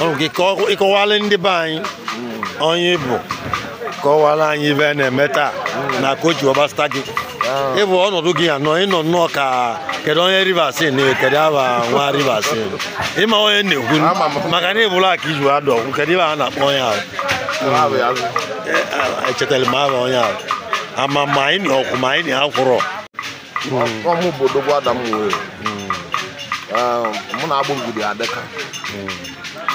oge oh, ah. ka ịkọwala ndị be anyị onye bụ, kọwara anyị ibe a na-eme taa na kochi ọbasta gị ịbụ ọnọdụ gị anọ ịnọ nnọọ ka kedu onye rivers kedu aba nwa rivers ịma onye na-ekwu maka na ịbụla aka iji adụ ọgwụ kedu ibe a na-akpọ onye ahụ echetara m aha onye ahụ ama ma anyị na ọkwụ ma anyị na akwụrọ ọmụ obodo gwada m wee mụ na agbụ ngidi adịka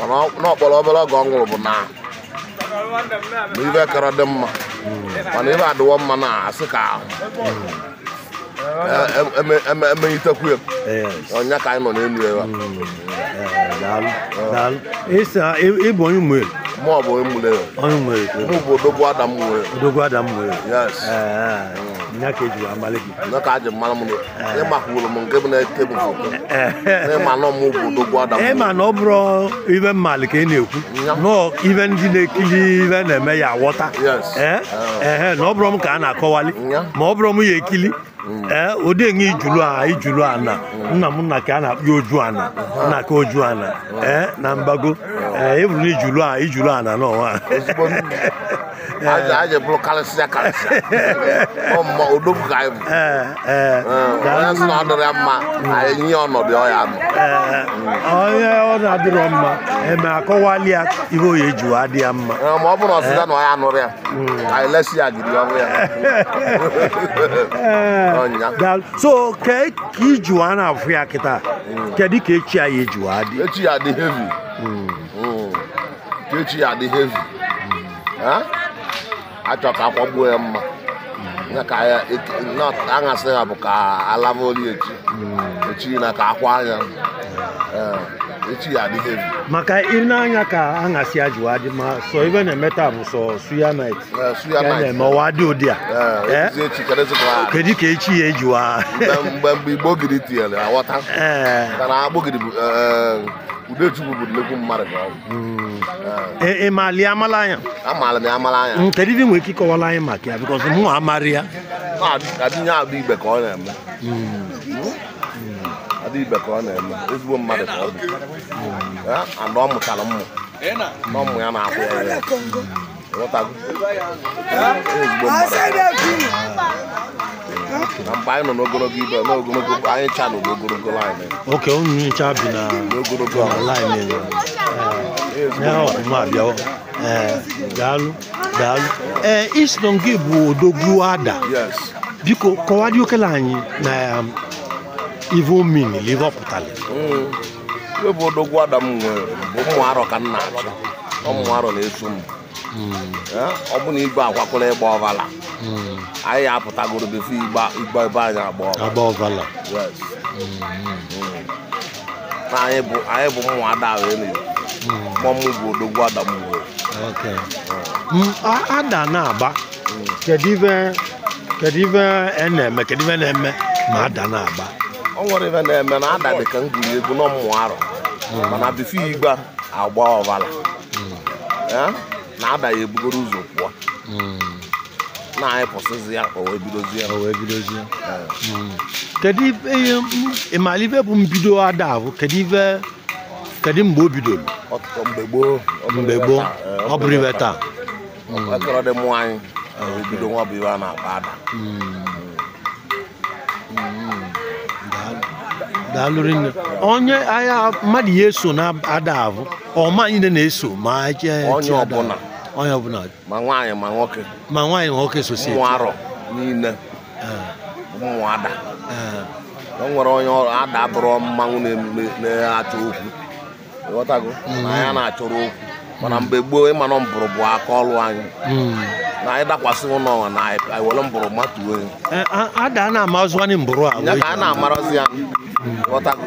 mana n'ọkpọrọ obere oge ọ nwụrụ bụ na ibe kara dị mma mana ibe adịwo mma na asị ka ahụ e- e- emenyitekwu onye ka anyị nọ n'elu ya mm. ịbụ onye mmụọ mụ ọ bụ onye mmụọ mụ bụ odogwu adam mmụọ odogwu adam mmụọ yes eh, eh. ka nke bụ eh, eh, eh. na ịma na bụ ịma na ọ bụrụ ibe mmalị ka ị na-ekwu nọ ibe ndị na-ekili ibe na-eme ya aghọta ka a na-akọwali m ekili ee ụdị enye ijulu a ijulu ana nna m nna ka a na akpụ oju ana nna ka oju ana ee na Eh, e buru n'ijulu a ijulu a na n'ọnwa eh. aje bụrụ karịsịa karịsịa ọmụma odogwu ka anyị bụ eh, onye sị na ọ dịrị mma anyị nye ọnọdụ ọya nọ onye ọ na-adịrọ mma eme akọwali ya ihe oyi eji wa ya mma ma ọ bụrụ na ọya ya ya ọrụ hmm. ka ijuwa na-afụ ya kịta hmm. kedụ ka echi ya ejuwa adị echi ya dị hevi hmm. echi ya dị hevi achọ ka akwagbuo ya mma aṅasị e, e, ya bụ ka alavaoli echi echi na ka akwa anya echi ya dị hevi maka na anya ka aṅasị ya jụwa dị ma sọ ibe na-eme taa bụ sọ suya suya ma ọwa dị ụdị a kedu ka echi ya ejiwa mgbe mgbe igbo giri tinyere aghọta udechubu budulekwu mmadụ ka ọ bụ ị maali amala anya amaala m amala anya kedu ife nwere ike ịkọwara anyị maka ya bikọs mụ amarị ya adịnye abụ igbe ka ọ na-eme adị ibe ka ọ na-eme ezigbo mmadụ ka ọ bụ ana ọ mụtara mmụ na ụmụ ya na-akwụ ya ya ezigbo mmadụ mgbe anyị nọ n'ogologo ibe n'ogologo anyị cha nọ n'ogologo laịn oke unu ncha bi na n'ogologo laịn ya ọfụma abịawa daalụ daalụ ee eh, isi nọ nke bụ odogwu ada biko kọwadị okele anyị na um, ive omin ive ọ pụtara mm. iwe bụ odogwu ada m nwere bụ ụmụ arọ ka m na-achọ ụmụ arọ na-eso m mm. eh, ọ bụ na igwe akwakọla ịgba ọbala anyị apụtagoro befe igbo ebe anyị agba na anyị bụ ụmụada mụmụ bụ odogwu adamgbo mm. ada na-agba kedu ife e na-eme kedu ife na-eme ma ada na-agba ọ nwere ife na-eme na ada dị ka m egwu n'ọmụmụ arọ mm. mana agba ọvala mm. eh? na ada ebugoro ụzọ na-ayịpụsịzi ya o wee o wee hmm. kedu ihe ịmara ibe bụ mbido ada bụ kedu kedu mgbe o bidoro mgbe gboo mgbe gboo ọ bụrụ taa hmm. dị mụ anyị ah, bido nwa bụ a na-akpa ada hmm. daalụ rinne onye ahịa mmadụ ya eso na ada abụ ọma anyị na-eso ma onye ọbụla onye ọbụla ma nwaanyị ma nwoke ma nwaanyị ma nwoke sosi ụmụ arọ niile ah. ụmụ ada ah. o nwere onye ada bụrụ mmanwụ na-achọ okwu ghọtago mm-hmm. na ya na-achọrọ okwu mana mgbe gboo ịmanụ mbụrụ bụ aka ọlụ anyị mm-hmm. na anyị dakwasị ụlọ ọnwa na anyị were mbụrụ matuo eh, ada a na-amaziwanị mbụrụ a ya ka a na-amarazị ya mm-hmm. ghọtago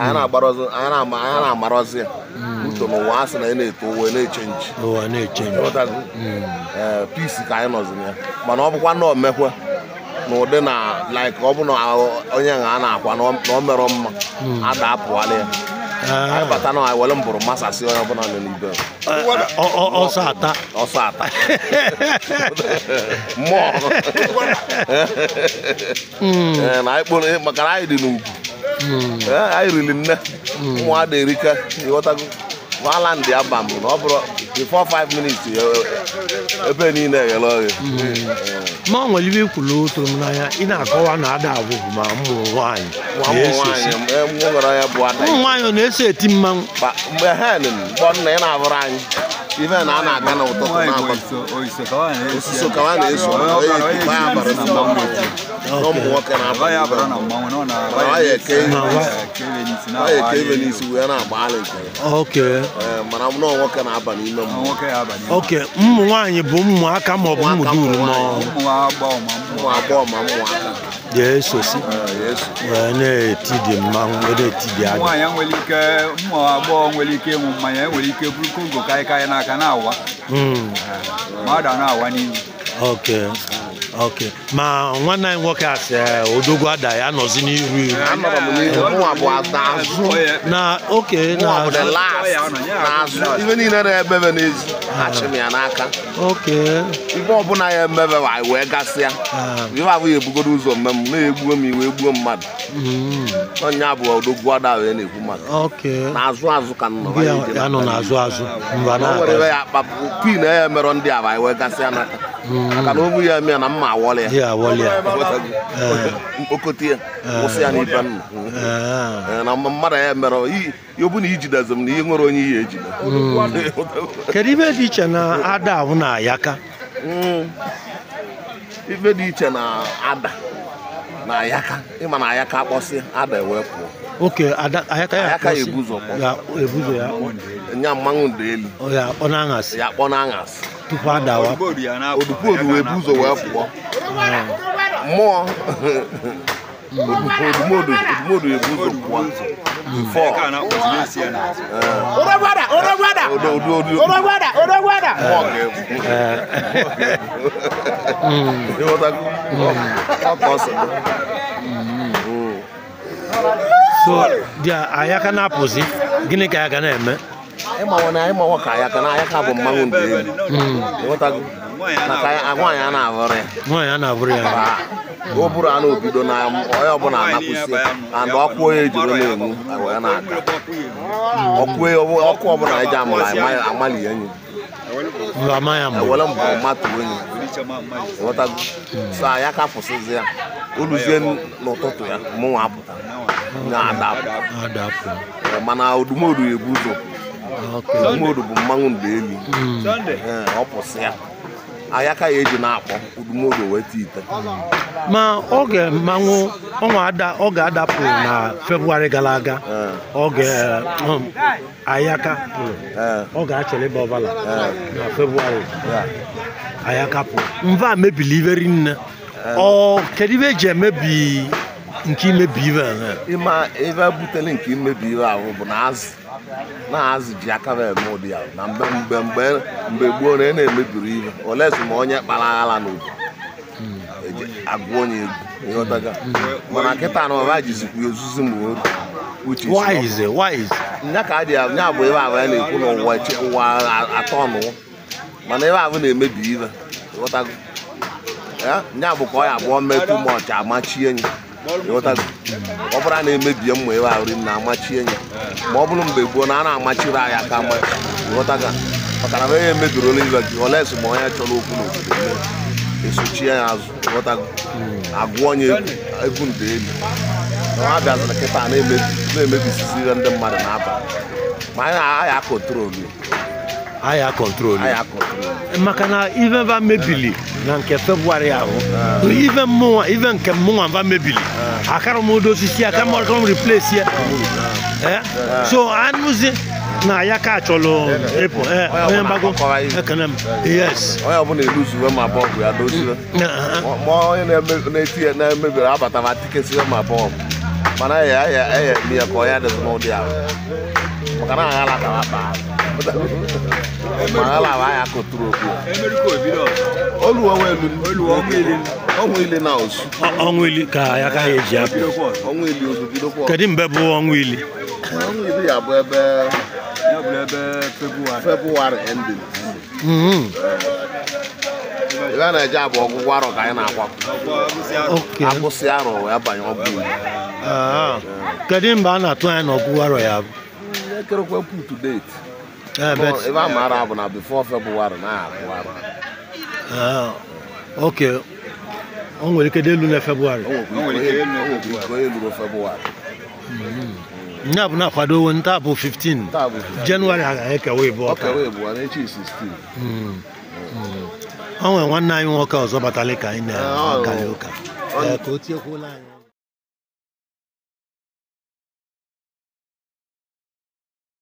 anyị na-agbarọzi ya uche n'ụwa asị na ị na-eto ụwa na-echenji eh, pisi ka anyị na ya mana ọ bụkwa na omekwe na ụdị na laik ọ bụ na onye a na-akwa na o merọ mma ada hmm. apụala ya ah. anyị bata na were mbụrụ masasị onye ọbụla nọ n'ibe eh, eh, ọsọ ata ọsọ ata mmụọ hmm. na maka na anyị dị n'ugwu hmm. anyị riri nne ụmụ ada erika One land, the na before five minutes e, ebe niile eghere oghe ma ọ nwere ibe ikwulu otu m n'anya ị na-akọwa na ada abụghị ma ụmụ nwaanyị ụmụ e nwaanyị e, ọ na-eso eti mmanwụ mgbe hen mgbe nna ị na-abụrụ anyị ife na a na-aga na ụtụtụ n'abalị ka a na-eso ụmụ nwoke na-aya eke ibe n'isi wee na-agbagharị nke mana m nwoke na-aba n'ime mmụọ ụmụ nwaanyị bụ ụmụaka maọbụ ụmụ dum ụmụ agbọghọ ma ụmụaka ga-esosi wee na-eti dị mmanwụ wee nwere ike ụmụ agbọghọ nwere ike ịnwụ mmanya e nwere ike bụrụ kongo karịkarị n'aka na-awa hmm. ah, mmadụ a na-awa n'ihu ok ma nwanne anyị nwoke asị. sị eh, odogwu ada ya anọzi n'iru iru na oke ife niile na-emebe na achị m ya n'aka ife ọbụla ya emebe wee gasịa ah. ife abụghị ebugoro ụzọ mme m na-egbuo m iwe gbuo mmadụ hmm. onye bụ odogwu ada wee na-egbu mmadụ n'azụ azụ ka nọ ya e ndị a wee gasịa n'aka maka na obu ya mee na mma awọla ya mkpokọta ya kwụsị ya n'ibe nna na mmadụ ya mere ọbụna ijidezi m na ihe nwere onye ihe ejide hmm. kedu ibe dị iche na ada ahụ na ayaka hmm. ibe dị iche na ada na ayaka ịma na ayaka akpọsị ada e wee pụọ oke ayaka ya ebuzo ya nya mmanwụ ndị elu ya akpọ na aṅasị mo mo tupu adawa odupodu wee bu Ora wee ora mmụọ odumodu odumodu wee bu ụzọ pụọ bifọ so dị anya ka na-apụzi gịnị ka ya ga na-eme ịma na ịma ọ ka ya ka hmm. na oh, ya ka bụ mmanwụ ndị elu ịghọtago maka nwaanyị a na-abụrụ ya nwaanyị a na-abụrụ ya o buru anụ obido na onye ọbụla anapụsị and ọkụ onye ejuru na-enwu wee na-aga ọkụ ọkụ ọbụla eji amụrụ amalị enyi ewere mbụ mmatụ enyi ịghọtago so ya ka fụsịzi ya oluzie n'ụtụtụ ya mụnwa apụta na-adapụ mana odumodu ebu ụzọ udumodu bụ mmanwụ mgbeelu hmm. ọ pụsị ya anya ka ya eji na-akpọ udumodu weta ite ma oge mmanwụ ọnwa ada ọ ga-adapụ na febụwarị gara aga oge um, ayaka pụrụ ọ ga-achere ebe ọbụla na febụwarị ayaka pụrụ mva mebili ibe rinne ọ kedu ibe eji emebi nke imebi ibe ihe butere nke imebi ibe ahụ bụ na azụ na-azụ ji aka na-eme ụdị ya na mgbe mgbe mgbe mgbe gboo na ị e na-emebiri ihe olesi ma onye kpara aghala n'obodo hmm. eji agụ onye egwu ịghọtaga mana nkịta na ọba ya ozuzi ma uche nya ka adị nya bụ ebe ahụ ya na-ekwu na ụwa ụwa atọ ọnụwụ mana ebe ahụ na-emebi ihe ịghọtago nya bụ ka ọ ya abụọ metụ mọchị amachie enyi ịghọtago hmm. ọ bụla na-emebi mma ebe ahụ ri na amachie enyi ma ọ bụrụ mgbe gboo na a na-amachiri anyị aka ama ghọtaga maka na onye emedurola ibe gị olesi ma onye chọrọ okwu n'obodo esochie ya azụ ghọtago agụọ onye egwu nde elu na ha bịazịrị kịta na-emebisizi ihe ndị mmadụ na n'abalị ma anyị akọntrolu ya aya kọntrolu maka na ife ba mebili na nke febụwarị ahụ ive mụnwa ive nke mụnwa mva mebiri akara m ụdọ osisi aka m ọkara m replace ya eh? so anụzi na ya ka chọrọ ịpụ onye mgbago ekene m yes onye ọbụla eluzuwe ma bọọbụ ya doziwe ma mm, mm, mm. onye na-eti na-emebiri abata ma tikesiwe ma bọọbụ mana e, e, e, ya ya ya ya ka onye adịzị n'ụdị ahụ maka na agha lakara akpa mana ala anya kụtụrụ okwu ọnwụ ili ka ya ka eji apụ kedu mgbe bụ ọnwụ ili ebe hmm. a ah. na-eje abụ ọgwụgwọ arọ ka anyị na-akwapụ akwụsị arọ wee banye ọgwụ kedu mgbe a na-atụ anya na ọgwụgwọ arọ ya bụ ebe a maara abụ na bifo febụwarị na-akwụ arọ Ah, ok o nwere ike dị elu na febụwarị nya bụ na-akwado nta bụ 15 jenụwarị ha ga-ekewa ịbụ ọka hmm. Hmm. o nwere nwanne anyị nwoke ọzọ batara ka anyị na-akari ụka ka o tiekwuola anyị